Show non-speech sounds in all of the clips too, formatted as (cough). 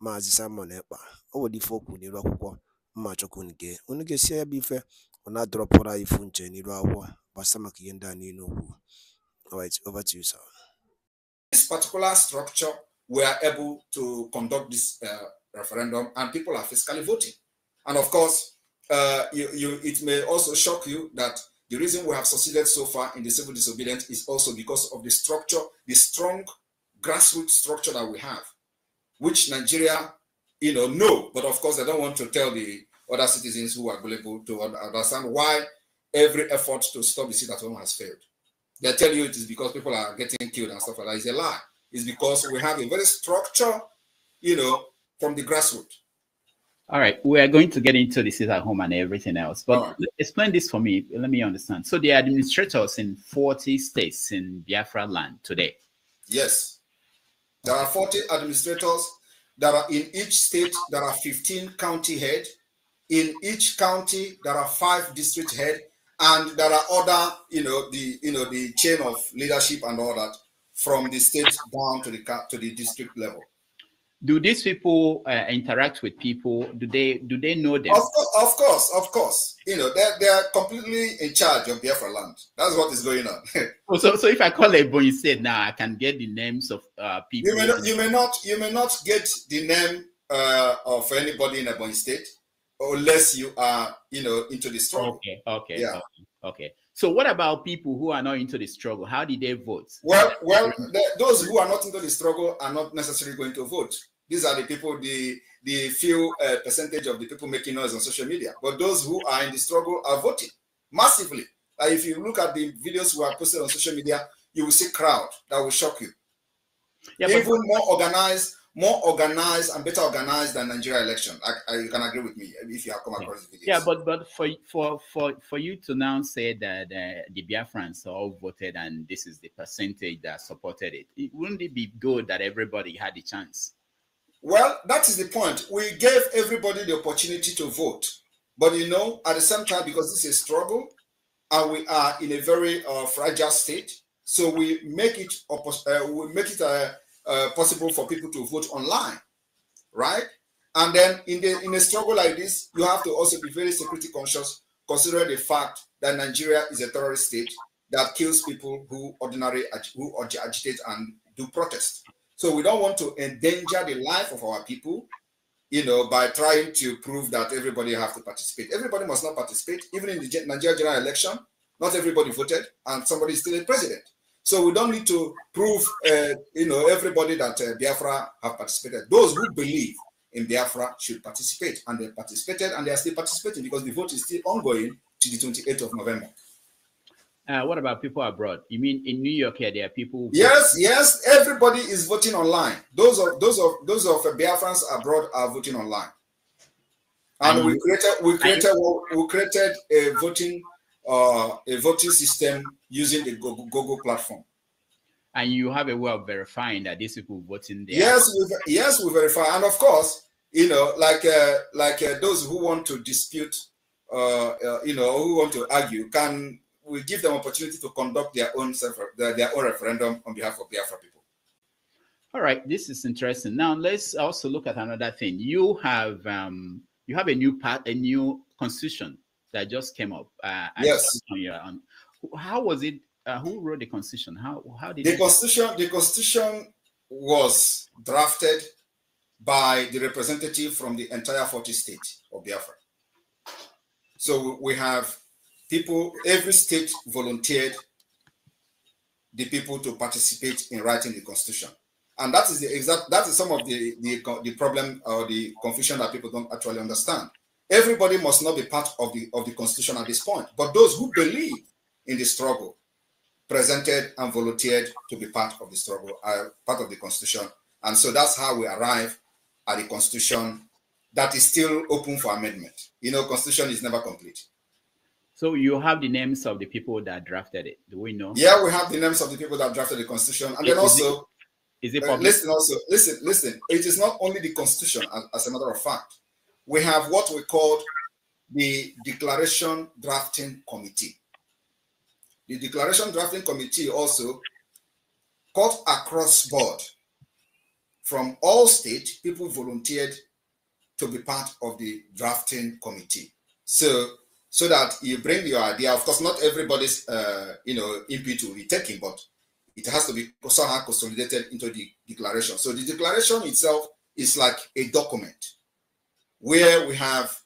Maazị Simon Ekpa o nwere ife o kwuru n'iru akwụkwọ mma chọkwu unu gee unu gesie ya bụ ife ọ na-adọrọpụrụ ifu nche n'iru akwụkwọ gbasa maka ihe ndị a niile Alright, over to you, sir. This particular structure, we are able to conduct this uh, referendum, and people are fiscally voting. And of course, uh, you, you, it may also shock you that the reason we have succeeded so far in the civil disobedience is also because of the structure, the strong grassroots structure that we have which Nigeria, you know, know. But of course, I don't want to tell the other citizens who are able to understand why every effort to stop the sit at home has failed. They tell you it is because people are getting killed and stuff like that. It's a lie. It's because we have a very structure, you know, from the grassroots. All right, we are going to get into this at home and everything else, but right. explain this for me. Let me understand. So, the administrators in 40 states in Biafra land today. Yes. There are 40 administrators. There are in each state, there are 15 county head. In each county, there are five district head, and there are other, you know, the you know the chain of leadership and all that from the state down to the to the district level do these people uh, interact with people? Do they do they know them? Of course, of course, of course. You know, they're, they're completely in charge of Biafra land. That's what is going on. (laughs) Oh, so, so if I call a you said, now nah, I can get the names of uh, people. You may not, you may not, you may not get the name uh, of anybody in Ebony State unless you are, you know, into the struggle. Okay, okay, yeah. okay. okay. So what about people who are not into the struggle? How did they vote? Well, well, the, those who are not into the struggle are not necessarily going to vote. These are the people, the the few uh, percentage of the people making noise on social media. But those who are in the struggle are voting massively. Uh, if you look at the videos we are posted on social media, you will see crowd that will shock you. Yeah, Even more organized more organized and better organized than Nigeria election. I, I, uh, you can agree with me if you have come across yeah. the videos. Yeah, but but for for for for you to now say that uh, the Biafrans all voted and this is the percentage that supported it, it wouldn't it be good that everybody had a chance? Well, that is the point. We gave everybody the opportunity to vote, but you know, at the same time, because this is a struggle, and we are in a very uh, fragile state, so we make it uh, we make it a uh, uh, possible for people to vote online, right? And then in the in a struggle like this, you have to also be very security conscious, considering the fact that Nigeria is a terrorist state that kills people who ordinary who agitate and do protest. So we don't want to endanger the life of our people, you know, by trying to prove that everybody have to participate. Everybody must not participate, even in the Nigeria general election. Not everybody voted, and somebody is still a president. So we don't need to prove, uh, you know, everybody that uh, Biafra have participated. Those who believe in Biafra should participate, and they participated, and they are still participating because the vote is still ongoing to the 28th of November. Uh, what about people abroad? You mean in New York here, there are people? Yes, yes. Everybody is voting online. Those of those of those of uh, Biafrans abroad are voting online, and, and we created we created we created a voting uh, a voting system using the Google, Google platform. And you have a way of verifying that these people voting there. Yes, we, yes, we verify, and of course, you know, like uh, like uh, those who want to dispute, uh, uh you know, who want to argue, can we give them opportunity to conduct their own their, their own referendum on behalf of Biafra people. All right, this is interesting. Now let's also look at another thing. You have um, you have a new part, a new constitution that just came up. Uh, yes. On your, on, how was it? Uh, who wrote the constitution? How how did the constitution? The constitution was drafted by the representative from the entire 40 state of Biafra. So we have people, every state volunteered the people to participate in writing the constitution. And that is the exact, that is some of the, the, the problem or the confusion that people don't actually understand. Everybody must not be part of the, of the constitution at this point, but those who believe in the struggle, presented and volunteered to be part of the struggle, uh, part of the constitution. And so that's how we arrive at a constitution that is still open for amendment. You know, constitution is never complete. So you have the names of the people that drafted it. Do we know? Yeah, we have the names of the people that drafted the constitution, and then also is it uh, public? listen, also listen, listen. It is not only the constitution. As, as, a matter of fact, we have what we called the Declaration Drafting Committee the Declaration Drafting Committee also cut across board from all states, people volunteered to be part of the drafting committee. So, so that you bring your idea. Of course, not everybody's uh, you know input will be taken, but it has to be somehow consolidated into the declaration. So the declaration itself is like a document where we have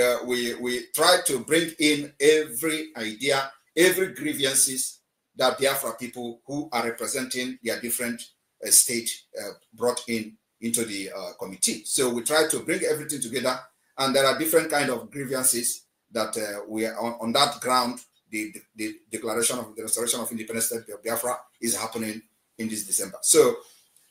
uh, we we try to bring in every idea every grievances that Biafra people who are representing their different uh, state uh, brought in into the uh, committee. So we try to bring everything together, and there are different kind of grievances that uh, we are on, on that ground. The, the, the, declaration of the restoration of independence state of Biafra is happening in this December. So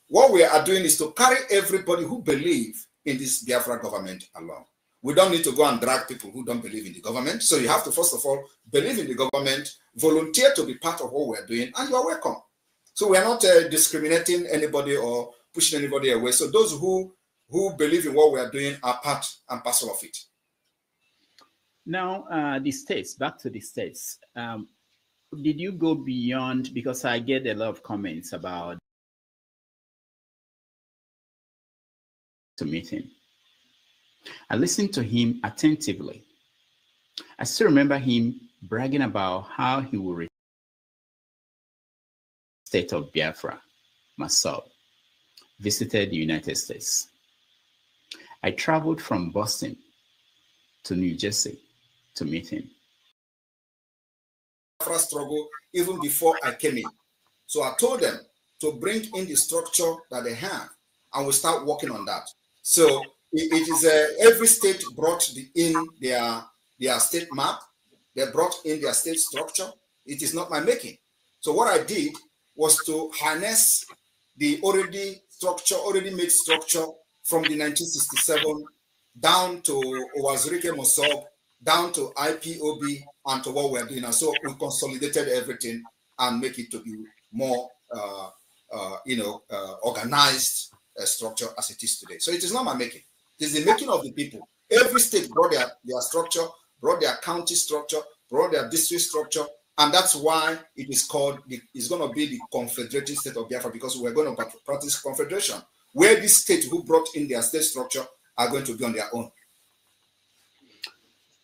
what we are doing is to carry everybody who believe in this Biafra government along we don't need to go and drag people who don't believe in the government. So you have to, first of all, believe in the government, volunteer to be part of what we're doing, and you are welcome. So we're not uh, discriminating anybody or pushing anybody away. So those who who believe in what we're doing are part and parcel of it. Now, uh, the states, back to the states. Um, did you go beyond, because I get a lot of comments about the meeting. I listened to him attentively. I still remember him bragging about how he would return state of Biafra, myself, visited the United States. I traveled from Boston to New Jersey to meet him. Biafra struggle even before I came in. So I told them to bring in the structure that they have and we start working on that. So it is uh, every state brought the, in their their state map. They brought in their state structure. It is not my making. So what I did was to harness the already structure, already made structure from the 1967 down to Owazurike Mosob, down to IPOB, and to what we're doing. And so we consolidated everything and make it to be more, uh, uh, you know, uh, organized uh, structure as it is today. So it is not my making. It's the making of the people. Every state brought their, their structure, brought their county structure, brought their district structure, and that's why it is called the, it's going to be the confederated state of biafra because we're going to practice confederation where these states who brought in their state structure are going to be on their own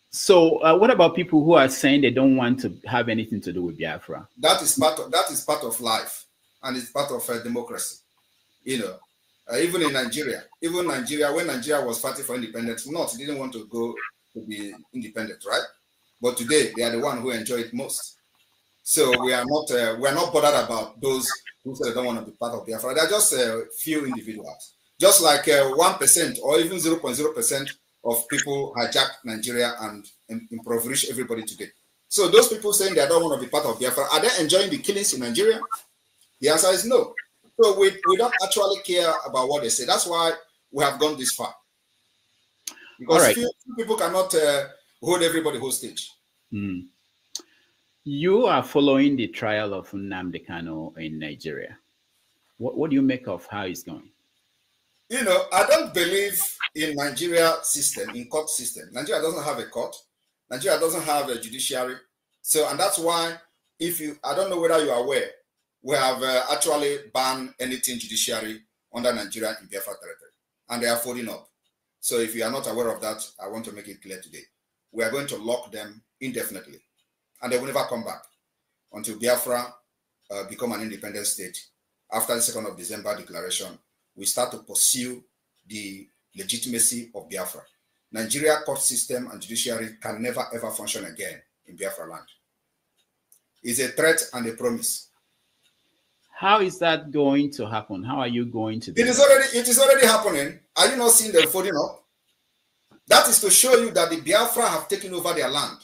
so uh, what about people who are saying they don't want to have anything to do with biafra that is part of that is part of life and it's part of uh, democracy you know uh, even in Nigeria, even Nigeria, when Nigeria was fighting for independence, not didn't want to go to be independent, right? But today they are the one who enjoy it most. So we are not uh, we are not bothered about those who say they don't want to be part of Biafra. They're just a few individuals, just like uh, one uh, or even zero point zero percent of people hijacked Nigeria and impoverish everybody today. So those people saying they don't want to be part of Biafra, are they enjoying the killings in Nigeria? The answer is no. So we, we don't actually care about what they say. That's why we have gone this far. Because right. few, few people cannot uh, hold everybody hostage. Mm. You are following the trial of Nnamdi Kano in Nigeria. What, what do you make of how it's going? You know, I don't believe in Nigeria system, in court system. Nigeria doesn't have a court. Nigeria doesn't have a judiciary. So, and that's why if you, I don't know whether you are aware, we have uh, actually banned anything judiciary under Nigeria in Biafra territory, and they are folding up. So if you are not aware of that, I want to make it clear today. We are going to lock them indefinitely, and they will never come back until Biafra uh, become an independent state. After the 2nd of December declaration, we start to pursue the legitimacy of Biafra. Nigeria court system and judiciary can never ever function again in Biafra land. It's a threat and a promise How is that going to happen? How are you going to? Do it is already it is already happening. Are you not seeing them folding up? That is to show you that the Biafra have taken over their land.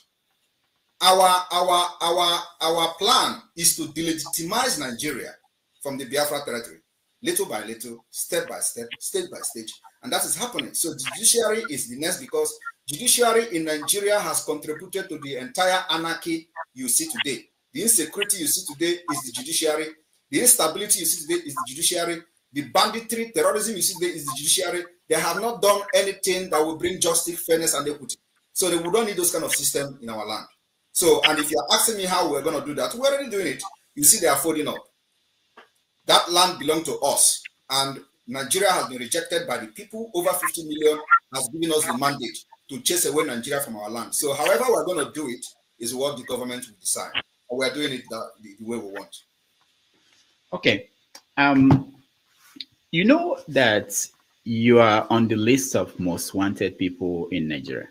Our our our our plan is to delegitimize Nigeria from the Biafra territory, little by little, step by step, stage by stage, and that is happening. So judiciary is the next because judiciary in Nigeria has contributed to the entire anarchy you see today. The insecurity you see today is the judiciary the instability you see today is the judiciary. The banditry, terrorism you see today is the judiciary. They have not done anything that will bring justice, fairness, and equity. So they would not need those kind of system in our land. So, and if you're asking me how we're going to do that, we're already doing it. You see, they are folding up. That land belonged to us, and Nigeria has been rejected by the people. Over 50 million has given us the mandate to chase away Nigeria from our land. So, however, we're going to do it is what the government will decide. we're doing it the, the way we want. Okay. Um, you know that you are on the list of most wanted people in Nigeria.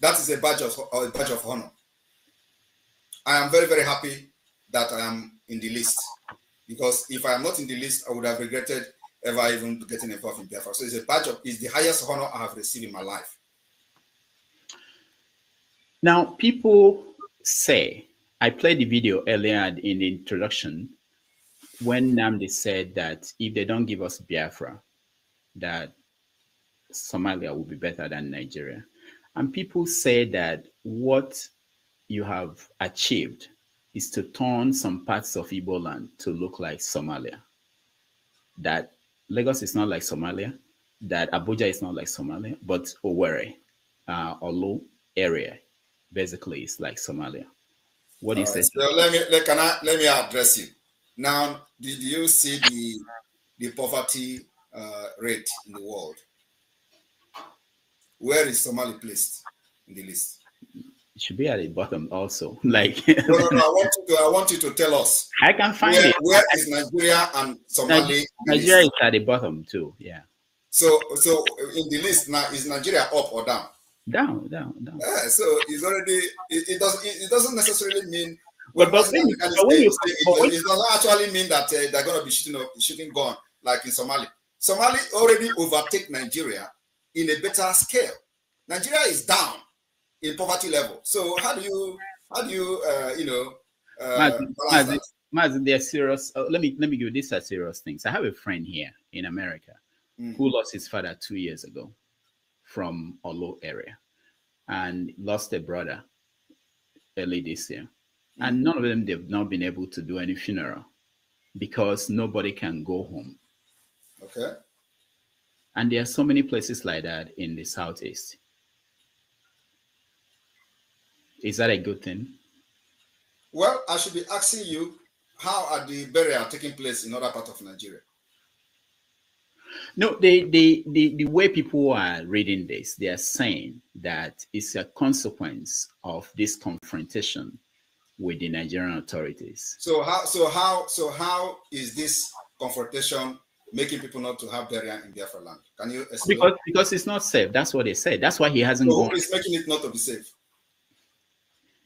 That is a badge of a badge of honor. I am very very happy that I am in the list because if I am not in the list, I would have regretted ever even getting involved in Biafra. So it's a badge of it's the highest honor I have received in my life. Now people say I played the video earlier in the introduction when Namdi said that if they don't give us Biafra, that Somalia will be better than Nigeria. And people say that what you have achieved is to turn some parts of Igbo land to look like Somalia. That Lagos is not like Somalia, that Abuja is not like Somalia, but Owerri, uh, Olu area, basically is like Somalia. What do you say? let me, let, can I, let me address you. Now, did you see the the poverty uh, rate in the world? Where is Somalia placed in the list? It should be at the bottom also. (laughs) Like no, no, no, I want you to I want you to tell us. I can find where, it. Where is Nigeria and Somalia? Nigeria is at the bottom too. Yeah. So so in the list now is Nigeria up or down? Down, down, down. Yeah, so it's already it, it doesn't it, it doesn't necessarily mean but, but but when you, it, doesn't actually mean that uh, they're going to be shooting up, shooting gun like in Somalia. Somalia already overtake Nigeria in a better scale. Nigeria is down in poverty level. So how do you how do you uh, you know? Uh, Mazi, they're serious. Uh, let me let me give you these are serious things. I have a friend here in America mm. who lost his father two years ago from a low area, and lost a brother early this year. And mm-hmm. none of them, they've not been able to do any funeral because nobody can go home. Okay. And there are so many places like that in the Southeast. Is that a good thing? Well, I should be asking you how are the burial taking place in other part of Nigeria? No, the, the, the, the way people are reading this, they are saying that it's a consequence of this confrontation with the Nigerian authorities. So how so how so how is this confrontation making people not to have burial in Biafra land? Can you explain? Because because it's not safe. That's what they said. That's why he hasn't so gone. Who is making it not to be safe?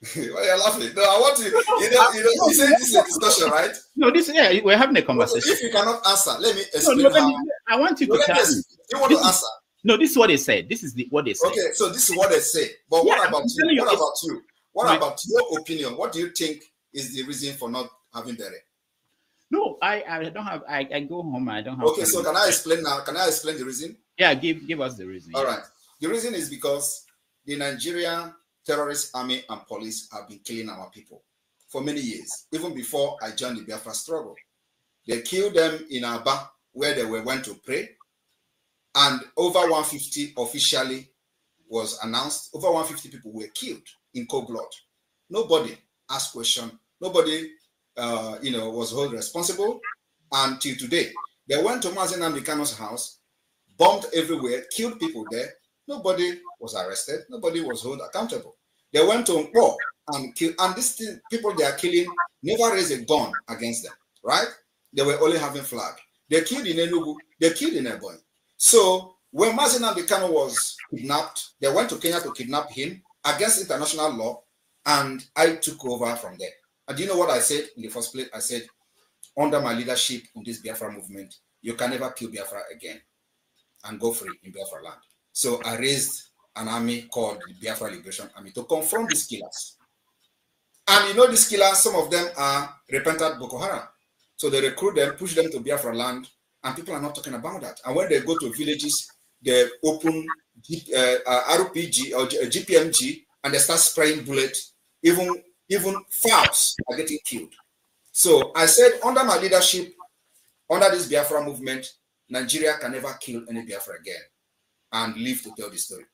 (laughs) Why are you laughing? No, I want to. You know, you know, this is a discussion, right? No, this yeah, we're having a conversation. If you cannot answer, let me explain. No, no, how. Me, I want you no, to tell me. You want this to answer? Is, no, this is what they said. This is the, what they said. Okay, so this is what they say. But yeah, what about you? What about you? What right. about your opinion? What do you think is the reason for not having dairy? No, I, I don't have. I, I go home. I don't have. Okay, so can I explain now? Can I explain the reason? Yeah, give give us the reason. All yeah. right. The reason is because the Nigerian terrorist army and police have been killing our people for many years, even before I joined the Biafra struggle. They killed them in Aba, where they were went to pray, and over 150 officially was announced. Over 150 people were killed in cold blood. Nobody asked question. Nobody, uh, you know, was held responsible until today. They went to Mazen Amdekano's house, bombed everywhere, killed people there. Nobody was arrested. Nobody was held accountable. They went to Nkpo and kill, and these people they are killing never raised a gun against them, right? They were only having flag. They killed in Enugu. They killed in Ebony. So when Mazen Amdekano was kidnapped, they went to Kenya to kidnap him against international law, and I took over from there. And do you know what I said in the first place? I said, under my leadership in this Biafra movement, you can never kill Biafra again and go free in Biafra land. So I raised an army called the Biafra Liberation Army to confront these killers. And you know these killers, some of them are repentant Boko Haram. So they recruit them, push them to Biafra land, and people are not talking about that. And when they go to villages, the open G, uh, uh RPG or G, GPMG uh, and they start spraying bullets. Even even fouls are getting killed. So I said, under my leadership, under this Biafra movement, Nigeria can never kill any Biafra again and live to tell the story.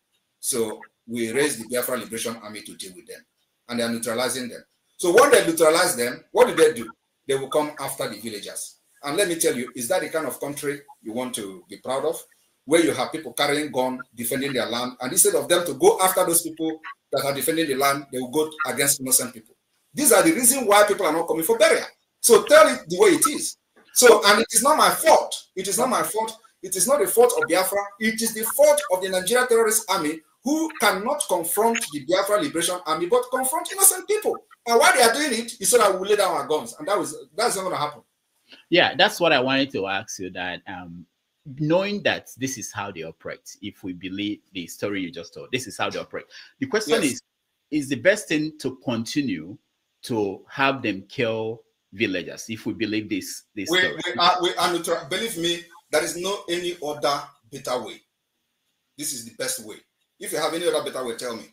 So we raised the Biafra Liberation Army to deal with them, and they are neutralizing them. So when they neutralize them, what do they do? They will come after the villagers. And let me tell you, is that the kind of country you want to be proud of? where you have people carrying gun, defending their land, and instead of them to go after those people that are defending the land, they will go against innocent people. These are the reason why people are not coming for burial. So tell it the way it is. So, and it is not my fault. It is not my fault. It is not the fault of Biafra. It is the fault of the Nigeria terrorist army who cannot confront the Biafra Liberation Army, but confront innocent people. And why they are doing it is so that we lay down our guns. And that was that's not going to happen. Yeah, that's what I wanted to ask you. That um, knowing that this is how they operate, if we believe the story you just told, this is how they operate. The question yes. is is the best thing to continue to have them kill villagers if we believe this this we, story. We are, uh, we are neutral. believe me there is no any other better way this is the best way if you have any other better way tell me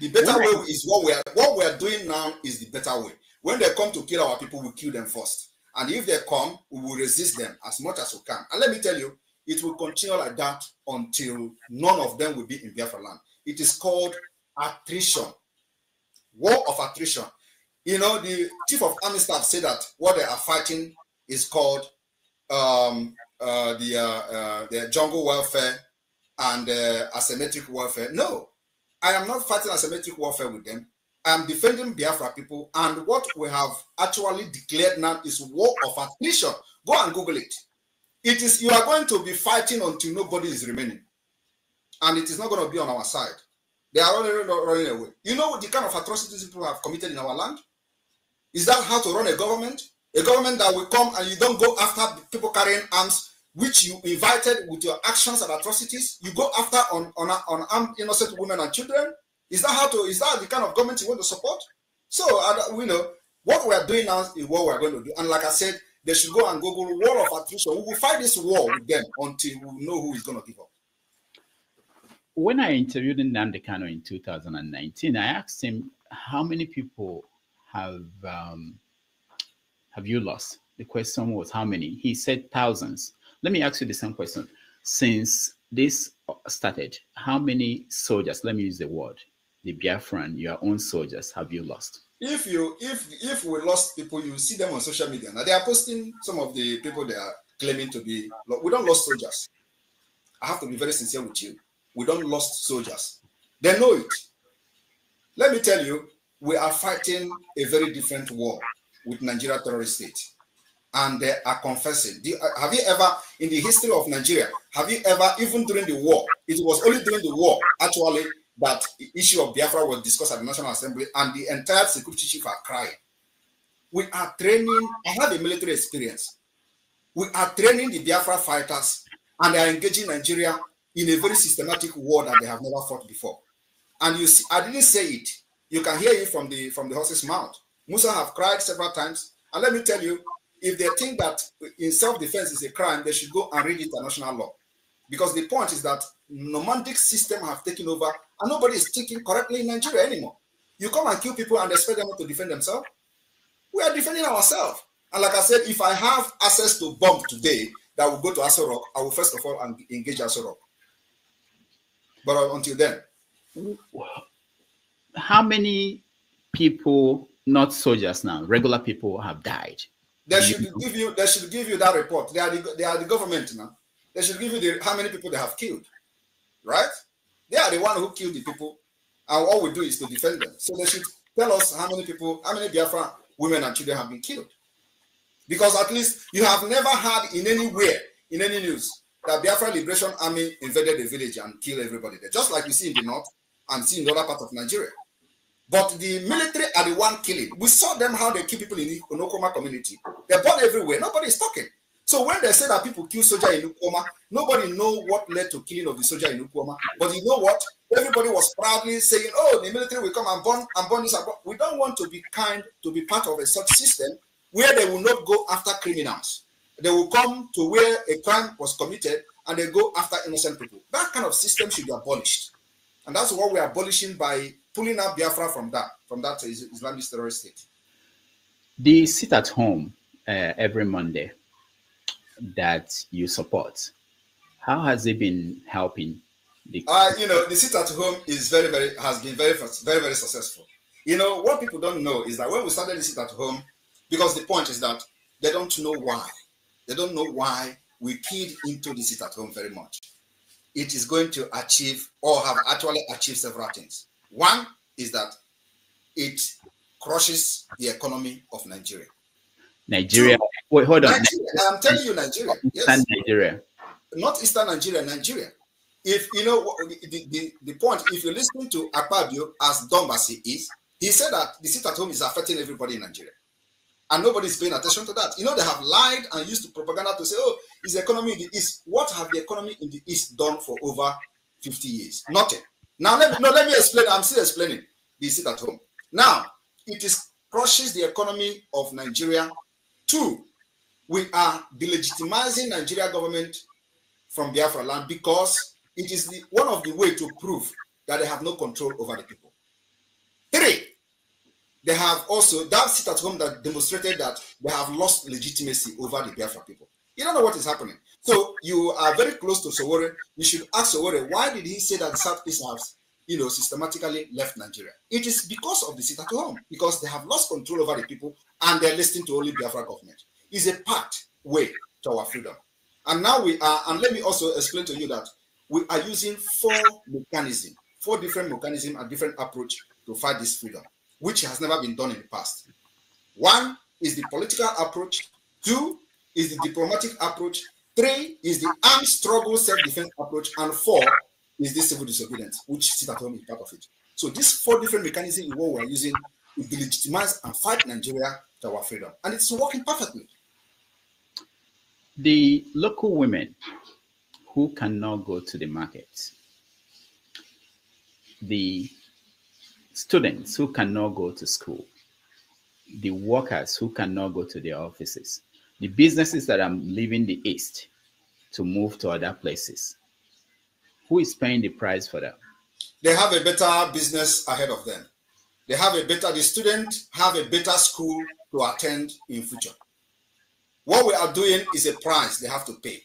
the better when way I, is what we are what we are doing now is the better way when they come to kill our people we kill them first and if they come, we will resist them as much as we can. And let me tell you, it will continue like that until none of them will be in Biafra land. It is called attrition, war of attrition. You know, the chief of army staff said that what they are fighting is called um, uh, the, uh, uh, the jungle warfare and uh, asymmetric warfare. No, I am not fighting asymmetric warfare with them. am defending Biafra people, and what we have actually declared now is war of attrition. Go and Google it. It is you are going to be fighting until nobody is remaining, and it is not going to be on our side. They are already running away. You know the kind of atrocities people have committed in our land. Is that how to run a government? A government that will come and you don't go after people carrying arms, which you invited with your actions and atrocities. You go after on on, on armed innocent women and children Is that how to? Is that the kind of government you want to support? So you uh, know what we are doing now is what we are going to do. And like I said, they should go and Google war of attrition. We will fight this war with them until we know who is going to give up. When I interviewed Nnamdi Kano in 2019, I asked him how many people have um, have you lost? The question was how many. He said thousands. Let me ask you the same question. Since this started, how many soldiers? Let me use the word the Biafran, your own soldiers, have you lost? If you if if we lost people, you see them on social media. Now they are posting some of the people they are claiming to be. We don't lost soldiers. I have to be very sincere with you. We don't lost soldiers. They know it. Let me tell you, we are fighting a very different war with Nigeria terrorist state, and they are confessing. You, uh, have you ever, in the history of Nigeria, have you ever, even during the war, it was only during the war actually that the issue of Biafra was discussed at the National Assembly, and the entire security chief are crying. We are training, I have a military experience. We are training the Biafra fighters, and they are engaging Nigeria in a very systematic war that they have never fought before. And you see, I didn't say it. You can hear it from the from the horse's mouth. Musa have cried several times. And let me tell you, if they think that in self-defense is a crime, they should go and read international law. Because the point is that nomadic system have taken over And nobody is thinking correctly in Nigeria anymore. You come and kill people and expect them to defend themselves. We are defending ourselves. And like I said, if I have access to bomb today that will go to Aso I will first of all engage Aso But until then. How many people, not soldiers now, regular people have died? They should give you. They should give you that report. They are the, they are the government now. They should give you the, how many people they have killed, right? They are the one who killed the people, and all we do is to defend them. So they should tell us how many people, how many Biafra women and children have been killed. Because at least you have never heard in anywhere, in any news, that Biafra Liberation Army invaded a village and killed everybody there, just like you see in the north and see in the other part of Nigeria. But the military are the one killing. We saw them how they kill people in the Onokoma community. They're born everywhere. Nobody is talking. So when they say that people kill soldier in Ukwama, nobody know what led to killing of the soldier in Ukwama. But you know what? Everybody was proudly saying, "Oh, the military will come and burn and burn this." We don't want to be kind to be part of a such system where they will not go after criminals. They will come to where a crime was committed and they go after innocent people. That kind of system should be abolished, and that's what we're abolishing by pulling out Biafra from that from that Islamic terrorist state. They sit at home uh, every Monday that you support. How has it been helping? The- uh, you know, the sit at home is very, very has been very, very, very successful. You know, what people don't know is that when we started the sit at home, because the point is that they don't know why. They don't know why we peed into the sit at home very much. It is going to achieve or have actually achieved several things. One is that it crushes the economy of Nigeria. Nigeria. Wait, hold on. Nigeria. I'm telling you, Nigeria. Yes. Nigeria. Not Eastern Nigeria, Nigeria. If you know the, the, the point, if you listen to Akpabio as dumb as he is, he said that the sit at home is affecting everybody in Nigeria. And nobody's paying attention to that. You know, they have lied and used to propaganda to say, oh, is the economy in the East. What have the economy in the East done for over 50 years? Nothing. Now, let me, no, let me explain. I'm still explaining the sit at home. Now, it is crushes the economy of Nigeria Two, we are delegitimizing Nigeria government from Biafra land because it is the, one of the way to prove that they have no control over the people. Three, they have also that sit at home that demonstrated that they have lost legitimacy over the Biafra people. You don't know what is happening. So you are very close to Sowore. You should ask Sowore why did he say that Southeast has, you know, systematically left Nigeria? It is because of the sit at home because they have lost control over the people and they're listening to only Biafra government. It's a pathway to our freedom. And now we are, and let me also explain to you that we are using four mechanisms, four different mechanisms and different approach to fight this freedom, which has never been done in the past. One is the political approach. Two is the diplomatic approach. Three is the armed struggle self-defense approach. And four is the civil disobedience, which sit at home is part of it. So these four different mechanisms is what we are using to delegitimize and fight Nigeria to our freedom. And it's working perfectly. The local women who cannot go to the market, the students who cannot go to school, the workers who cannot go to their offices, the businesses that are leaving the East to move to other places. Who is paying the price for that? They have a better business ahead of them. They have a better, the student have a better school to attend in future. What we are doing is a price they have to pay.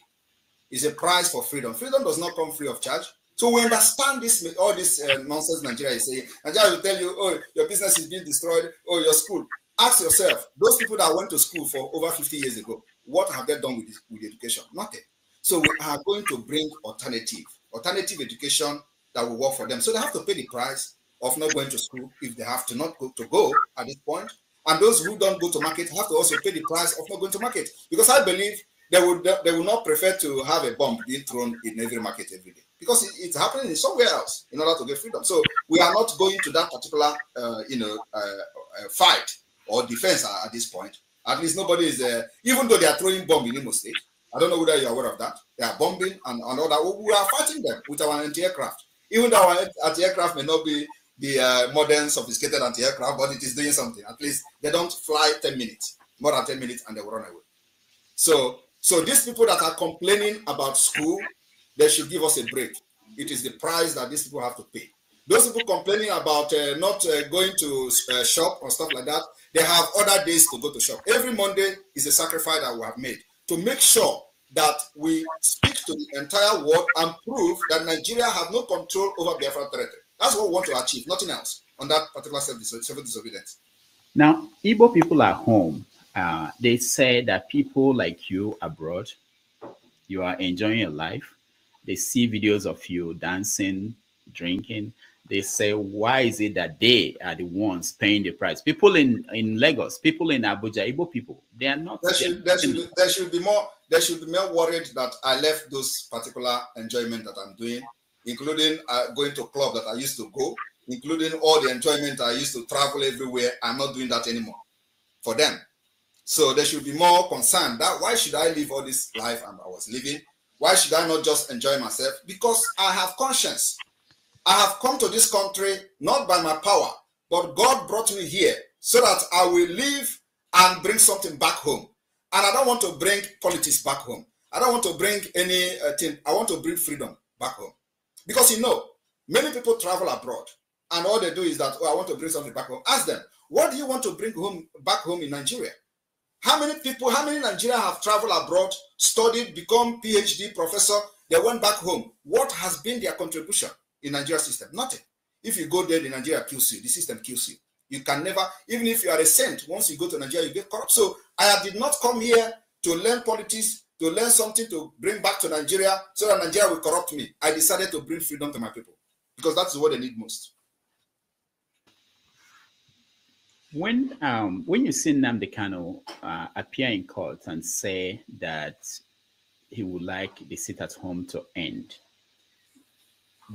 It's a price for freedom. Freedom does not come free of charge. So we understand this all this uh, nonsense Nigeria is saying. Nigeria will tell you, oh, your business is being destroyed, oh, your school. Ask yourself, those people that went to school for over 50 years ago, what have they done with, this, with education? Nothing. So we are going to bring alternative, alternative education that will work for them. So they have to pay the price of not going to school if they have to not go to go at this point. And those who don't go to market have to also pay the price of not going to market. Because I believe they would they will not prefer to have a bomb being thrown in every market every day because it, it's happening somewhere else in order to get freedom. So we are not going to that particular uh, you know uh, uh fight or defense at, this point. At least nobody is uh, even though they are throwing bomb in Imo State. I don't know whether you're aware of that. They are bombing and, and all that. We are fighting them with our anti-aircraft. Even though our anti-aircraft may not be the uh, modern sophisticated anti-aircraft, but it is doing something. At least they don't fly 10 minutes, more than 10 minutes, and they will run away. So, so these people that are complaining about school, they should give us a break. It is the price that these people have to pay. Those people complaining about uh, not uh, going to uh, shop or stuff like that, they have other days to go to shop. Every Monday is a sacrifice that we have made to make sure that we speak to the entire world and prove that Nigeria has no control over Biafra territory. That's what we want to achieve, nothing else on that particular civil disobedience. Now, Igbo people at home, uh, they say that people like you abroad, you are enjoying your life. They see videos of you dancing, drinking. They say, why is it that they are the ones paying the price? People in, in Lagos, people in Abuja, Igbo people, they are not. There should, there should, be, there should be more. There should be more worried that I left those particular enjoyment that I'm doing including uh, going to club that I used to go, including all the enjoyment I used to travel everywhere. I'm not doing that anymore for them. So they should be more concerned that why should I live all this life and I was living? Why should I not just enjoy myself? Because I have conscience. I have come to this country not by my power, but God brought me here so that I will live and bring something back home. And I don't want to bring politics back home. I don't want to bring anything. Uh, I want to bring freedom back home. Because you know, many people travel abroad and all they do is that, oh, I want to bring something back home. Ask them, what do you want to bring home back home in Nigeria? How many people, how many Nigerians have traveled abroad, studied, become PhD professor, they went back home? What has been their contribution in Nigeria system? Nothing. If you go there, the Nigeria kills you. The system kills you. You can never, even if you are a saint, once you go to Nigeria, you get corrupt. So I did not come here to learn politics to learn something to bring back to Nigeria so that Nigeria will corrupt me. I decided to bring freedom to my people because that's what they need most. When um, when you see Namdi Kano uh, appear in court and say that he would like the sit at home to end,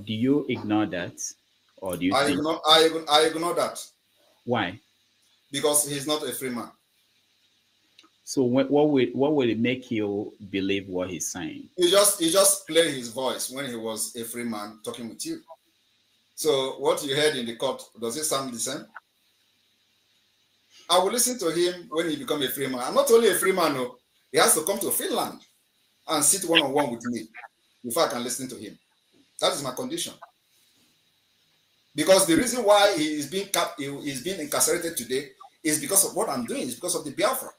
do you ignore that, or do you? I think... ignore I, I ignore that. Why? Because he's not a free man. So when, what would what would it make you believe what he's saying? He just he just played his voice when he was a free man talking with you. So what you heard in the court does it sound the same? I will listen to him when he become a free man. I'm not only a free man, no. Oh, he has to come to Finland and sit one on one with me before I can listen to him. That is my condition. Because the reason why he is being cap- he is being incarcerated today is because of what I'm doing. It's because of the Biafra.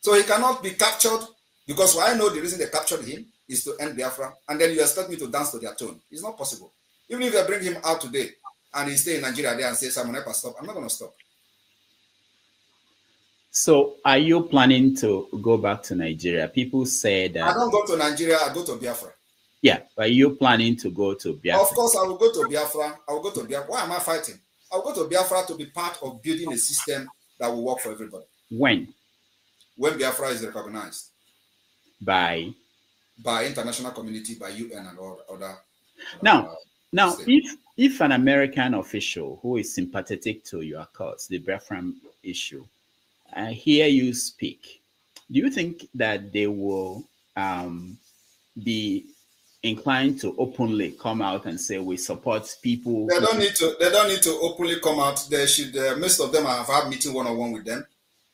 So he cannot be captured because I know the reason they captured him is to end Biafra, and then you expect me to dance to their tune. It's not possible. Even if they bring him out today and he stay in Nigeria there and say, Simon Epa, stop, I'm not going to stop. So are you planning to go back to Nigeria? People say that... I don't go to Nigeria, I go to Biafra. Yeah, Are you planning to go to Biafra? Of course, I will go to Biafra. I will go to Biafra. Why am I fighting? I will go to Biafra to be part of building a system that will work for everybody. When? when Biafra is recognized by by international community, by UN and all other. Now, uh, now, if if an American official who is sympathetic to your cause, the Biafra issue, I hear you speak, do you think that they will um, be inclined to openly come out and say we support people? They don't need to. They don't need to openly come out. They should. Uh, most of them have had meeting one on one with them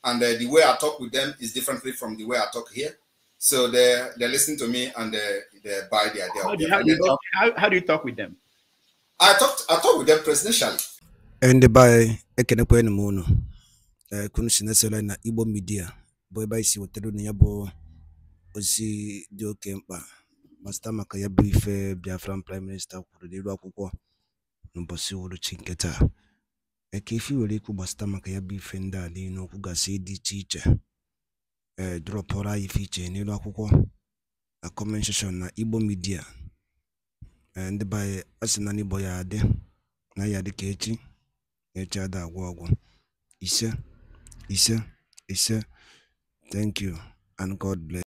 and uh, the way I talk with them is differently from the way I talk here. So they they listen to me and they, uh, they buy their deal. How, do you, how, talk, how, how do you talk with them? I talk I talk with them presidentially. And by ekenekwe ni mono. Kunu sinesela na Igbo media. bụ ebe anyị si wetara unu ya bụ ozi dị oke mkpa ma site maka Biafran prime Minister, kwuru n'iru akwụkwọ n'ụbọchị uhuruchi ka efi nwere ikwu gbasata maka ya bụ ife ndị a niile okwu gasị dị iche iche ee anyị ife iche n'elu akwụkwọ na na igbo midia e, ndị be anyị bụ ya adị na ya dị ka echi na echi ada agwụ ọgwụ ise ise ise thank you and god bless